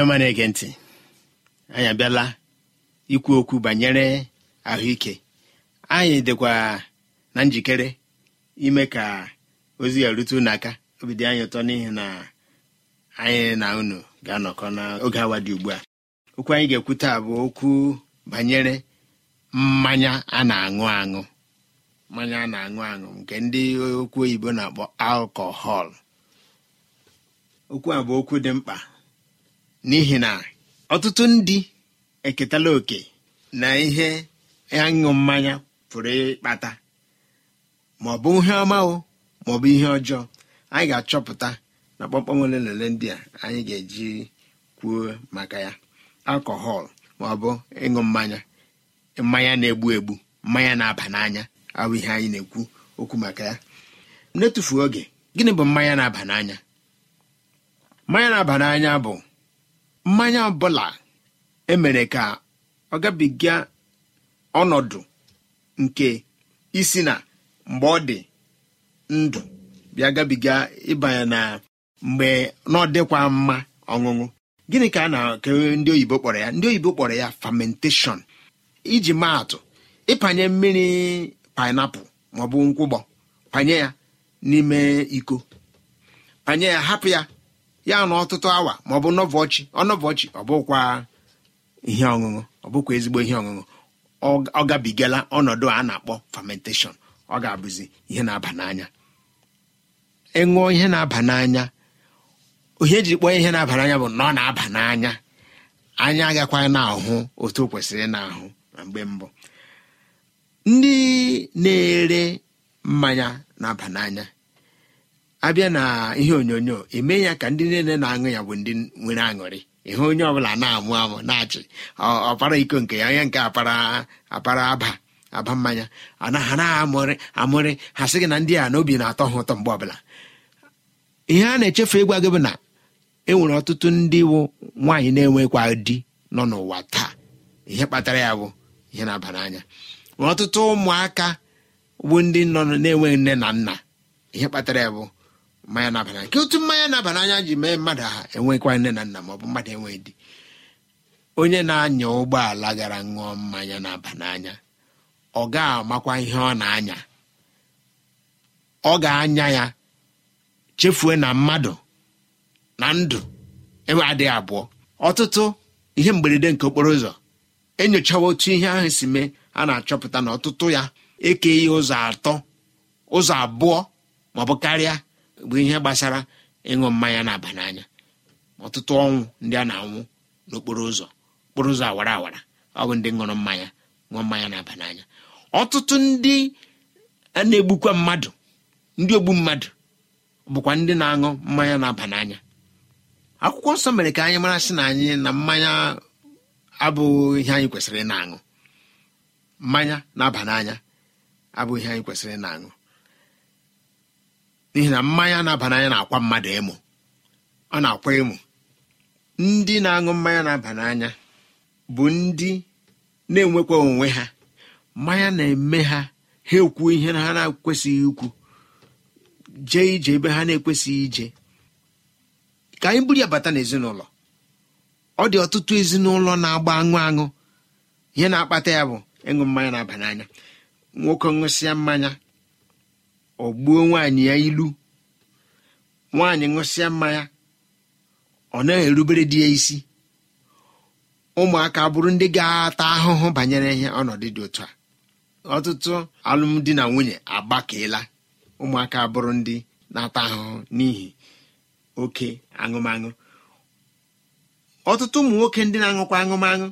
ndị ọma na-ege ntị anyị abịala ikwu okwu banyere ahụike anyị dịkwa na njikere ime ka ozi ya rute n'aka aka obi anyị ụtọ n'ihi na anyị na unu ga-anọkọ n'oge awa dị ugbu a okwu anyị ga ekwute taa bụ okwu banyere mmanya a na-aṅụ aṅụ mmanya a na-aṅụ aṅụ nke ndị okwu oyibo na-akpọ alkọhọl okwu a bụ okwu dị mkpa n'ihi na ọtụtụ ndị eketala oke na ihe aṅụ mmanya pụrụ ịkpata ma ọ bụ ihe ọma o ma ọ bụ ihe ọjọọ anyị ga-achọpụta na kpọmkpọm ole na ole ndị a anyị ga-eji kwuo maka ya alkọhọl ma ọ bụ ịṅụ mmanya mmanya na-egbu egbu mmanya na-aba n'anya ahụ ihe anyị na-ekwu okwu maka ya n'etufuo oge gịnị bụ mmanya na-aba n'anya mmanya na-aba n'anya bụ mmanya ọbụla emere ka ọ gabiga ọnọdụ nke isi na mgbe ọ dị ndụ bịa gabiga ịbanye na mgbe n'ọdịkwa mma ọṅụṅụ gịnị ka a na-ekewe ndị oyibo kpọrọ ya ndị oyibo kpọrọ ya famentation iji maa atụ ịpanye mmiri painapụl maọbụ nkwụgbọ panye ya n'ime iko panye ya hapụ ya ya na ọtụtụ awa ma ọ bụ nọvọchi ọnọvọchi ọ bụkwa ihe ọṅụṅụ ọ bụkwa ezigbo ihe ọṅụṅụ ọ gabigala ọnọdụ a na-akpọ fermentation ọ ga-abụzi ihe na-aba n'anya ịṅụọ e ihe na-aba n'anya ihe eji kpọọ ihe na-aba n'anya bụ na ọ na-aba n'anya anya agakwa na-ahụ otu o kwesịrị na-ahụ na mgbe mbụ ndị na-ere mmanya na-aba n'anya abịa na ihe onyonyo eme ya ka ndị niile na-aṅụ ya bụ ndị nwere aṅụrị ihe onye ọbụla na-amụ amụ na-achị ọpara iko nke ya onye nke apara apara aba aba mmanya anaghị na-amụrị amụrị ha sị gị na ndị a na obi na-atọ ha ụtọ mgbe ọbụla ihe a na-echefu ịgwa gị bụ na e nwere ọtụtụ ndị wụ nwaanyị na-enwekwa di nọ n'ụwa taa ihe kpatara ya bụ ihe na-aba n'anya ọtụtụ ụmụaka bụ ndị nọ na-enweghị nne na nna ihe kpatara ya bụ mmanya na nke otu mmanya na-aba n'anya ji mee mmadụ ha enwekwa nne na nna ma ọ bụ mmadụ enweghị di onye na-anya ụgbọala gara ṅụọ mmanya na-aba n'anya ọ ga-amakwa ihe ọ na-anya ọ ga-anya ya chefue na mmadụ na ndụ enwe adịghị abụọ ọtụtụ ihe mberede nke okporo ụzọ enyochawa otu ihe ahụ si mee a na-achọpụta na ọtụtụ ya ekeghị ụzọ atọ ụzọ abụọ maọbụ karịa bụ ihe gbasara ịṅụ mmanya na-aba n'anya ọtụtụ ọnwụ ndị a na-anwụ n'okporo ụzọ okporo ụzọ awara awara ọ bụ ndị ṅụrụ mmanya ṅụọ mmanya na-aba n'anya ọtụtụ ndị a na-egbukwa mmadụ ndị ogbu mmadụ bụkwa ndị na-aṅụ mmanya na-aba n'anya akwụkwọ nsọ mere ka anyị mara sị na anyị na mmanya abụghị ihe anyị kwesịrị na-aṅụ mmanya na-aba n'anya abụghị ihe anyị kwesịrị na-aṅụ n'ihi na mmanya na-aba n'anya na-akwa mmadụ ịmụ ọ na-akwa ịmụ ndị na-aṅụ mmanya na-aba n'anya bụ ndị na-enwekwa onwe ha mmanya na-eme ha ha ekwu ihe na ha na-ekwesịghị ikwu jee ije ebe ha na-ekwesịghị ije ka anyị buru ya bata n'ezinụlọ ọ dị ọtụtụ ezinụlọ na-agba aṅụ aṅụ ihe na-akpata ya bụ ịṅụ mmanya na n'anya nwoke ṅụsịa mmanya ọ gbuo nwaanyị ya ilu nwaanyị ṅụsịa mmanya ọ na-erubere di ya isi ụmụaka bụrụ ndị ga-ata ahụhụ banyere ihe ọnọdụ dị otu a ọtụtụ alụmdi na nwunye agbakeela ụmụaka bụrụ ndị na-ata ahụhụ n'ihi oke aṅụmaṅụ ọtụtụ ụmụ nwoke ndị na-aṅụkwa aṅụmaṅụ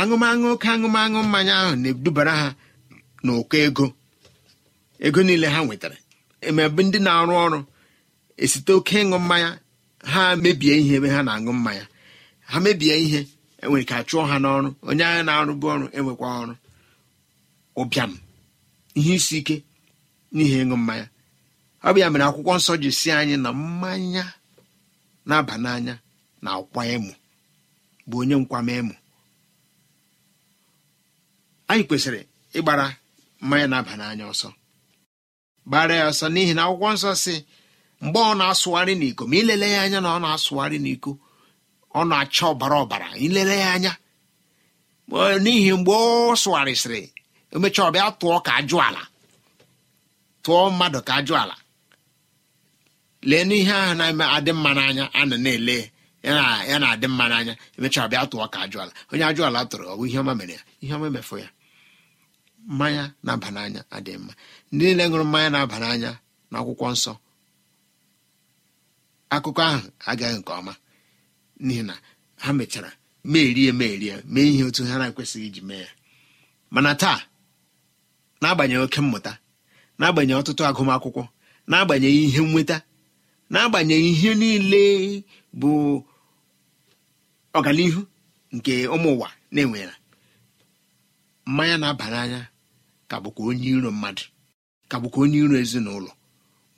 aṅụmaṅụ oke aṅụmaṅụ mmanya ahụ na-edubara ha n'ụkọ ego ego niile ha nwetara emebe ndị na-arụ ọrụ esite oke ịṅụ mmanya ha mebie ihe ebe ha na-aṅụ mmanya ha mebie ihe enwere ka chụọ ha n'ọrụ onye agha na-arụbu ọrụ enwekwa ọrụ ụbịam ihe isi ike n'ihi ịṅụ mmanya ọ bụ ya mere akwụkwọ nsọ ji si anyị na mmanya na-aba n'anya na akwa emu bụ onye nkwama emu anyị kwesịrị ịgbara mmanya na-aba n'anya ọsọ gbara ya ọsọ n'ihi na akwụkwọ nsọ si mgbe ọ na-asụgharị n'iko ma ilele ya anya na ọ na-asụgharị n'iko ọ na-acha ọbara ọbara ilele ya anya n'ihi mgbe ọ sụgharịsịrị emecha ọbịa tụọ ka ajụ ala tụọ mmadụ ka ajụ ala lee n'ihe ahụ na-eme adị mma n'anya a na na-ele ya na-adị mma n'anya emecha ọbịa tụọ ka ajụ ala onye ajụ ala tụrụ bụ ihe ọma mere ya ihe ọma mefụ ya mmanya na-aba n'anya adịghị mma ndị niile ṅụrụ mmanya na-aba n'anya na akwụkwọ nsọ akụkọ ahụ agaghị nke ọma n'ihi na ha mechara meerie meerie mee ihe otu ha na-ekwesịghị iji mee ya mana taa n'agbanyeghị oke mmụta n'agbanyeghị ọtụtụ agụmakwụkwọ n'agbanyeghị ihe nnweta n'agbanyeghị ihe niile bụ ọganihu nke ụmụ ụwa na-enwera mmanya na-aba n'anya ka bụkwa onye iro mmadụ ka bụkwa onye iro ezinụlọ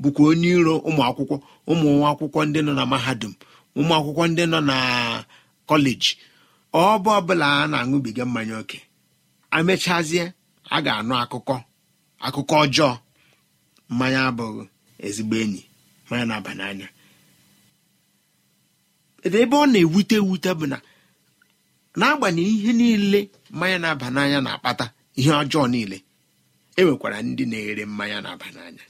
bụkwa onye iro ụmụ akwụkwọ ụmụ akwụkwọ ndị nọ na mahadum ụmụ akwụkwọ ndị nọ na kọleji ọbụ ọbụla a na-aṅụbiga mmanya ókè amechazie a ga-anụ akụkọ akụkọ ọjọọ mmanya abụghị ezigbo enyi mmanya na-aba n'anya ebe ọ na-ewute ewute bụ na n'agbanyeghị ihe niile mmanya na-aba n'anya na-akpata ihe ọjọọ niile enwekwara ndị na-ere mmanya na-aba n'anya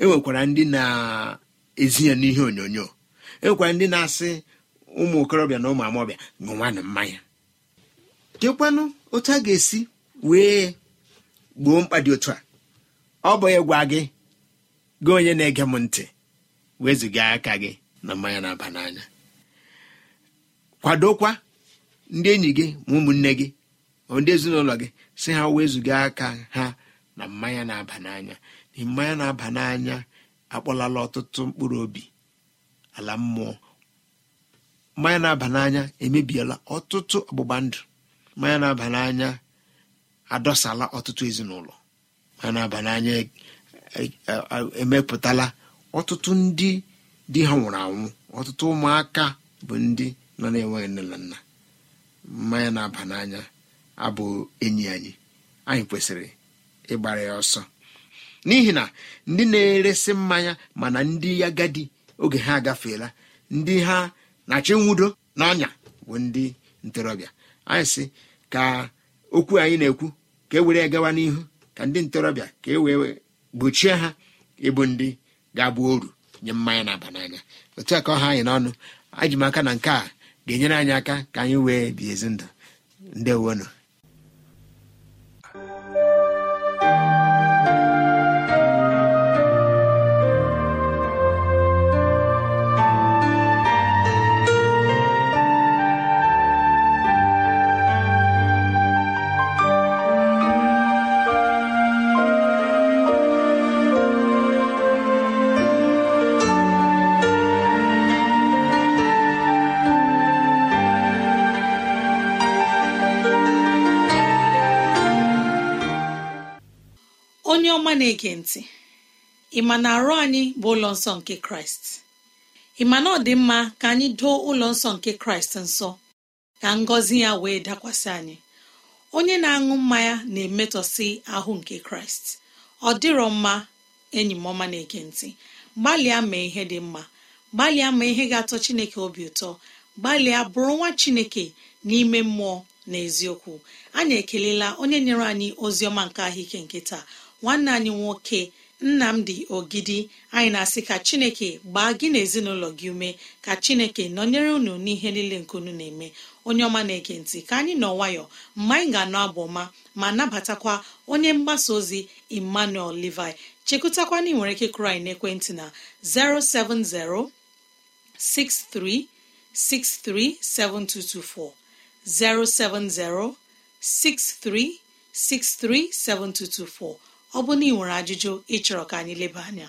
enwekwara ndị na-ezi ya n'ihe onyonyo enwekwara ndị na-asị ụmụ okorobịa na ụmụ amọbịa ṅụnwanụ mmanya kekwanụ otu a ga-esi wee gboo mkpa dị otu a ọ bụ ịgwa gị gị onye na-ege m ntị wezụga aka gị na mmanya na-aba n'anya kwadokwa ndị enyi gị ma ụmụnne gị ndị ezinụlọ gị si ha wezụga aka ha na mmanya na-aba n'anya na mmanya na-aba n'anya akpọlala ọtụtụ mkpụrụ obi ala mmụọ mmanya na-aba n'anya emebiela ọtụtụ ọgbụgba ndụ mmanya na-aba n'anya adọsala ọtụtụ ezinụlọ mmanya na-aba n'anya e, e, e, emepụtala ọtụtụ ndị di ha nwụrụ anwụ ọtụtụ ụmụaka bụ ndị nọ na-enweghị nne na nna mmanya na-aba n'anya abụ enyi anyị anyị kwesịrị ịgbara ya ọsọ n'ihi na ndị na-eresi mmanya mana ndị agadi oge ha agafeela ndị ha na-achọ nwudo na ọnya bụ ndị ntorobịa anyị sị ka okwu anyị na-ekwu ka e were gawa n'ihu ka ndị ntorobịa ka e wee gbochie ha ịbụ ndị ga-abụ oru nye mmanya na-aba n'anya otu a ka ọha anyị n'ọnụ ajimaka na nke a ga-enyere anyị aka ka anyị wee bi ezi ndụ ndewonụ na-ege ntị ị ma na arụ anyị bụ ụlọ nsọ nke kraịst ị ma na ọ dị mma ka anyị doo ụlọ nsọ nke kraịst nsọ ka ngọzi ya wee dakwasị anyị onye na-aṅụ mmanya na emetọsi ahụ nke kraịst ọ dịrọ mma enyi m ọma na-ege ntị gbalịa mee ihe dị mma gbalịa ma ihe ga-atọ chineke obi ụtọ gbalịa bụrụ nwa chineke n'ime mmụọ na eziokwu anyị ekelela onye nyere anyị ozi ọma nke ahụike nke taa nwanne anyị nwoke nnamdi ogidi anyị na-asị ka chineke gbaa gị na ezinụlọ gị ume ka chineke nọnyere unu n'ihe niile nke unu na-eme onye ọma na-ege ntị ka anyị nọ nwayọ mgbe anyị ga-anọ abụ ọma ma nabatakwa onye mgbasa ozi emmanuel levi chekwutakwa na nwere ike kụrụ anyị n'ekwentị na 6363 7224. ọ bụ na ị nwere ajụjụ ịchọrọ ka anyị leba anya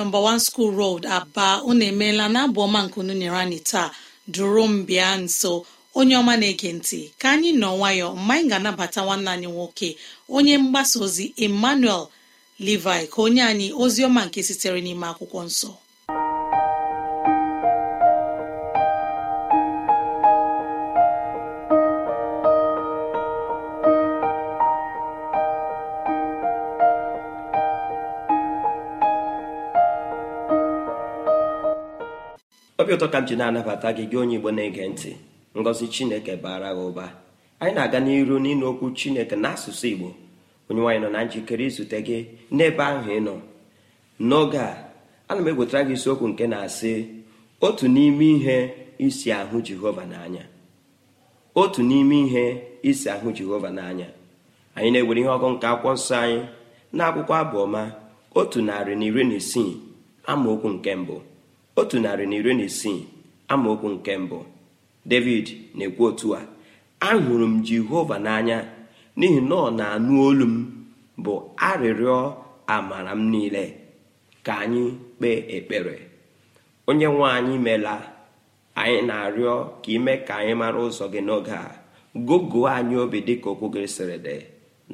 nọmba wan skul rod aba unu emeela na abụ ọma nke unu nyere anyị taa duru m bịa nso onye ọma na-ege ntị ka anyị nọ nwayọ mgbe anyị ga-anabata nwanne anyị nwoke onye mgbasa ozi emmanuel livi ka onye anyị ozi ọma nke sitere n'ime akwụkwọ nsọ obi ụtọ ka m ji na-anabata gị gị onye igbo na-ege ntị ngọzi chineke bara gị ụba anyị na-aga n'iru n'ịnụ okwu chineke n'asụsụ igbo onye nwaanyị nọ na njikere izute gị n'ebe ahụ ị nọ n'oge a ana m egwetara gị isiokwu nke na-asị otu n'ime ihe isi ahụ jehova n'anya otu n'ime ihe isi ahụ jehova n'anya anyị na-ewere ihe ọgụ nke akwụkwọ nsọ anyị na akwụkwọ abụọma otu narị na iri na isii amaokwu nke mbụ otu narị na iri na isii amaokwu nke mbụ david na-ekwu otu a ahụrụ m jehova n'anya n'ihi na ọ na-anụ olu m bụ arịrịọ amara m niile ka anyị kpee ekpere onye nwe anyị meela anyị na-arịọ ka ime ka anyị mara ụzọ gị n'oge a gogo anyị obi dịka okwu gị sịrị dị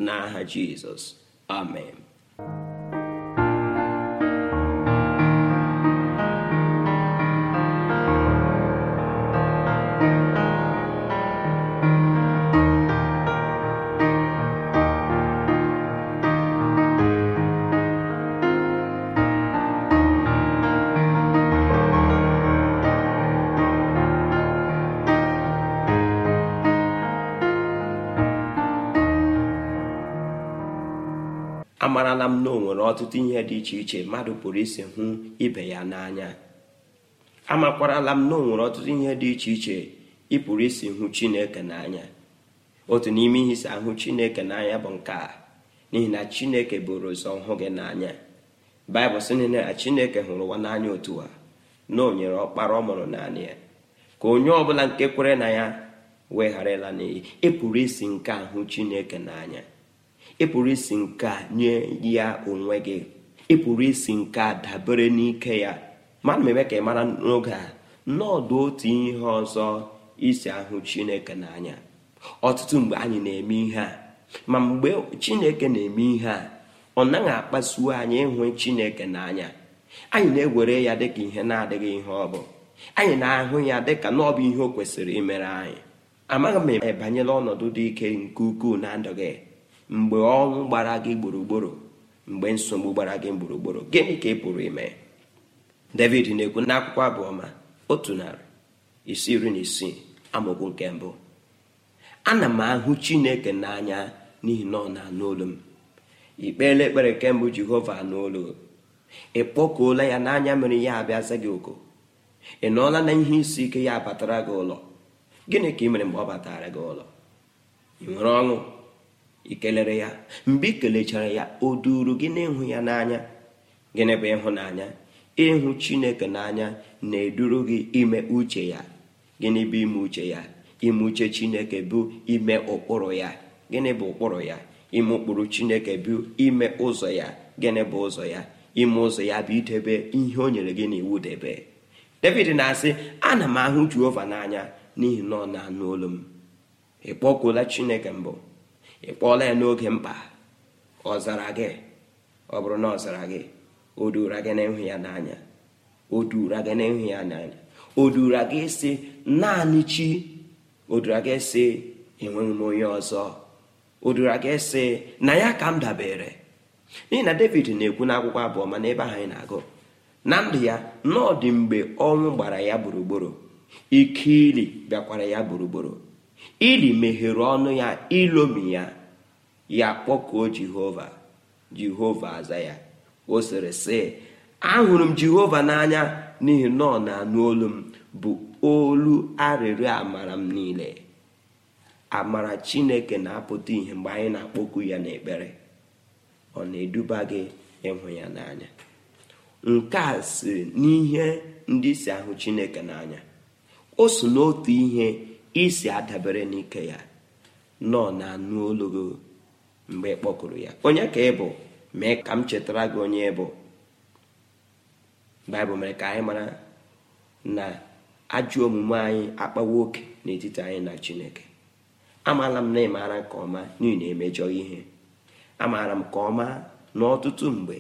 n'aha jizọs amen amarala m na o nwere ọtụtụ ihe dị iche iche mmadụ pụrụ isi hụ ibe ya n'anya amakwarala m na o nwere ọtụtụ ihe dị iche iche ị pụrụ isi hụ chineke n'anya otu n'ime ihe isi ahụ chineke n'anya bụ nke a n'ihi na chineke bụrụ ụzọ hụ gị n'anya baịbụl sị na chineke hụrụ ụwa n'anya otu a na o nyere ọkpara ọ mụrụ naanị ya ka onye ọbụla nke kwere na ya ịla n'iyi ịpụrụ isi nke ahụ chineke n'anya ịpụrụ isi nke a nye ya onwe gị ịpụrụ isi nke a dabere n'ike ya mana m eme ka ị mara n'oge a n'ọdụ otu ihe ọzọ isi ahụ chineke n'anya ọtụtụ mgbe anyị na-eme ihe a ma mgbe chineke na-eme ihe a ọ naghị akpasuo anyị ịhụ chineke n'anya anyị na-ewere ya dịka ihe na-adịghị ihe ọ bụ anyị na-ahụ ya dịka na bụ ihe o kwesịrị imere anyị amaghị m ebanyela ọnọdụ dị ike nke ukwuu na ndụ gị mgbe ọnwụ gbara gị gburugburu mgbe nsogbu gbara gị gburugburu gịnị ka ị pụrụ ime david na-ekwu n'akwụkwọ abụọma otu narị isi iri na isii amaokwu nke mbụ ana m ahụ chineke n'anya n'ihi na ọ na-anụ olu m ikpeela ekpere kemgbe jehova n'olu ị kpọkuola ya n'anya mere ya abịaza gị oko ị nọọla na ihe isi ike ya batara gị ụlọ gịnị ka ị mere mgbe ọ batara gị ụlọ ị nwere ọṅụ i kelere ya mgbe i kelechara ya o duru gị ịhụ ya n'anya gịnị bụ ịhụnanya ịhụ chineke n'anya na-eduru gị ime uche ya gịnị bụ ime uche ya ime uche chineke bụ ime ụkpụrụ ya gịnị bụ ụkpụrụ ya ime ụkpụrụ chineke bụ ime ụzọ ya gịnị bụ ụzọ ya ime ụzọ ya bụ idebe ihe o nyere gị n'iwu debe david na-asị ana m ahụ jehova n'anya n'ihi na ọ na-anụ olu m ị kpọkuola chineke mbụ ị kpọọla ya n'oge mkpa ọ zara gị ọ bụrụ na ọ zara gị o duura gị na ya n'anya o gị na ya n'anya o gị si naanị chi o duura gị si enweghị m onye ọzọ o duura gị si na ya ka m dabere n'ihi na david na-ekwu n'akwụkwọ abụọ mana ebe ahụ anyị na-agụ na ndụ ya n'ọdị mgbe ọnwụ gbara ya gburugburu ili bịakwara ya gburugburu ili meghere ọnụ ya ilomi ya ya kpọkuo jehova jehova aza ya o sịrị sị ahụrụ m jehova n'anya n'ihi na ọ na-anụ olu m bụ olu arịrịọ amara m niile amara chineke na-apụta ihe mgbe anyị na-akpọku ya na ekpere ọ na-eduba gị ịhụ ya n'anya nke a si n'ihe ndị si ahụ chineke n'anya o so n'otu ihe isi adabere n'ike ya nọ na anụ olugo mgbe kpọkụrụ ya onye ka ị bụ mee ka m chetara gị onye bụ baịbụl mere ka anyị mara na ajọ omume anyị akpawa oke n'etiti anyị na chineke amaala m na m nke ọma n'ihi na emejọ ihe amaara m ka ọma n'ọtụtụ mgbe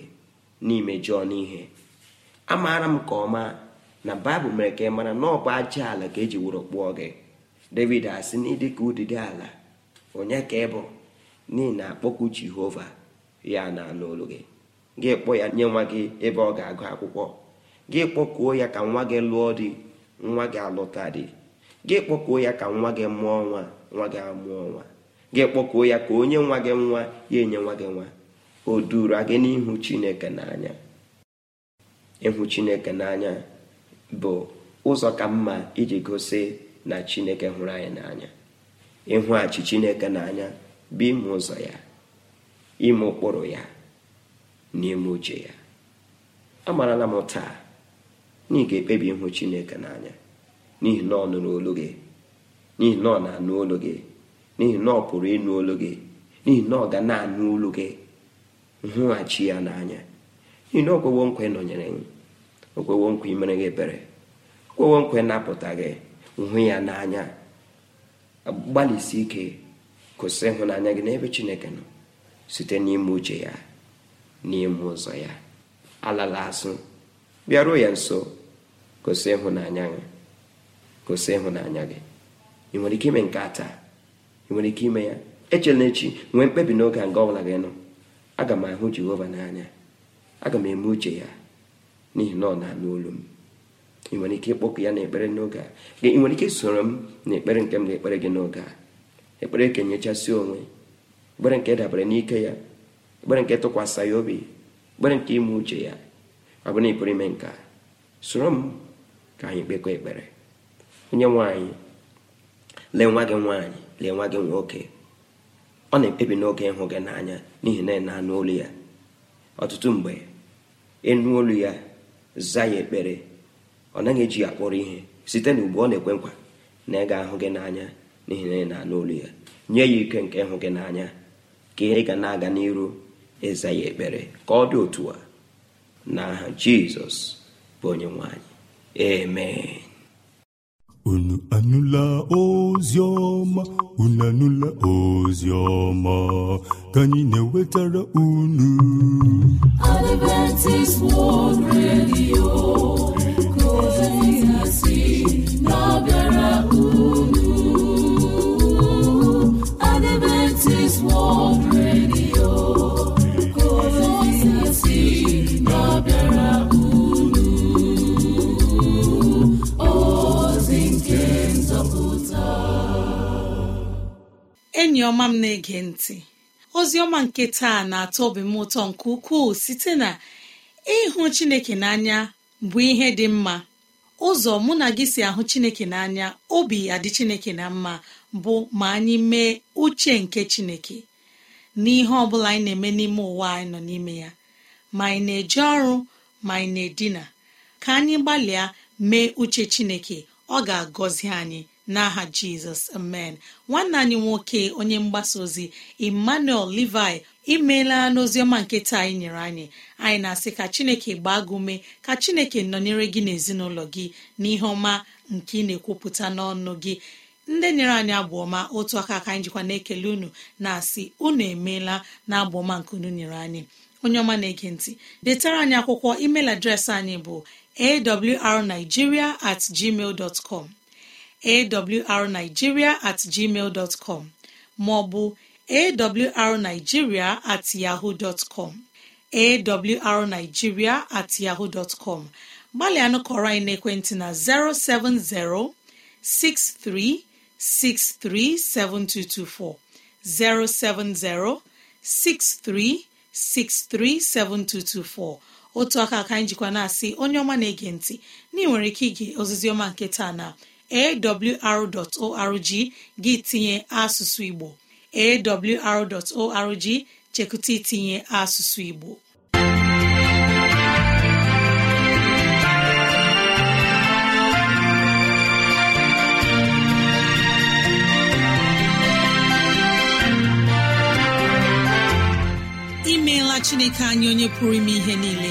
n'imejọ n'ihe amaara m nke ọma na baịbụl mere ka ị mara na ọ bụ aja ala ka eji wụrụ kpụọ gị david asị na ka ụdịdị ala onye ka ịbụ n'ihi na akpọku jehova ya na-anụ gị gị kpọọ ya nye nwa gị ebe ọ ga-agụ akwụkwọ gị kpọkuo ya ka nwa gị lụọ dị nwa gị alụta dị gị kpọkuo ya ka nwa gị mụọ nwa nwa gị amụọ nwa gị kpọkuo ya ka onye nwa gị nwa ya enye nwa gị nwa o duru gị n'ihu chineke n'anya ịhụ chineke n'anya bụ ụzọ ka mma iji gosi na chineke hụrụ anyị n'anya achị chineke n'anya bụ ime ụzọ ya ime ụkpụrụ ya na ime uche ya amarala m taa na ị ga-ekpebi ịhụ chineke n'anya n'ihi na ọ nụrụ olu gị n'ihi na ọ na-anụ olu gị n'ihi na ọ pụrụ ịnụ olu gị n'ihi na ọ ga na-anụ olu gị nhụghachi ya n'anya n'ihi na okwewo nkwa nọnyere gị okwewo nkwa imere gị ebere okwewo nkwa napụta gị hụ ya n'anya gbalịsi ike kwụsị ịhụnanya gị n'ebe chineke nọ site n'ime uche ya n'ime ụzọ ya alala asụ bịaruo ya nso kwụsị ịhụnanya gị kwụsị ịhụnanya gị ị nwere ike ime nke a taa ị nwere ike ime ya echela echi nwee mkpebi n'oge a nga ọbụla gị nọ aga m ahụ jehova n'anya aga m eme uche ya n'ihi na ọ na-anụ olu m ị nwere ike ịkpọkụ ya n'ekpere n'oge a ị nwere ike soro m n'ekpere nke m ga ekpere gị n'oge a ekpere nke nyechasị onwe ekpere nke dabere n'ike ya ekpere nke tụkwasị ya obi ekpere nke ime uche ya ọ bụrụ na ịpụrụ ime nke a soro m ka anyị kpekọ ekpere onye nwanyị lee nwa gị nwaanyị lee nwa gị nwoke ọ na-ekpebi n'oge ịhụ gị n'anya n'ihi na ị na-anụ olu ya ọtụtụ mgbe ịnụ olu ya zaa ya ekpere ọ naghị eji ya kpọrọ ihe site na ugbu ọ na-ekwe nkwa na ị ga-ahụ gị n'anya n'ihi na ị na-anụ olu ya nye ya ike nke ịhụ gị n'anya ka ị ga na-aga n'iru ịza ya ekpere ka ọ dị otu a aha jizọs bụ onye nwanyị amen unu anụla Ozioma unu anụla ozi ka anyị na-ewetara unu Adventist World Radio enyi ọma m na-ege ntị ozi ọma nke taa na-atọ obi m ụtọ nke ukwuu site na ịhụ chineke n'anya bụ ihe dị mma ụzọ mụ na gị si ahụ chineke n'anya obi adị chineke na mma bụ ma anyị mee uche nke chineke n'ihe ọ bụla anyị na-eme n'ime ụwa anyị nọ n'ime ya ma anyị na-eje ọrụ ma anyị na-edina ka anyị gbalịa mee uche chineke ọ ga-agọzi anyị n'aha jizọs amen nwanne anyị nwoke onye mgbasa ozi emmanuel levi imeela n'oziọma nke taa anyị nyere anyị anyị na-asị ka chineke gbaa gị ume ka chineke nọnyere gị n'ezinụlọ gị n'ihe ọma nke ị na-ekwupụta n'ọnụ gị ndị nyere anyị abụọma otu aka ka anyị jikwa na-ekele unu na-asị unu emeela na abụọma nke unu nyere anyị onye ọma na-ege ntị detara anyị akwụkwọ email adreesị anyị bụ awrnigeria at gmail dot com awrnigeria at gmail maọbụ arigiria at yahoo dọtcom awrnigeria at yahoo dọtcom gbalịa kọrọ anyị n'ekwentị na 070 63637224 otu aka aka njikwa na-asị onye ọma na-ege ntị na nwere ike ige ọma nke taa na awr.org gị tinye asụsụ Igbo awr.org chekụta itinye asụsụ Igbo imeela Chineke anyị onye pụrụ ime ihe niile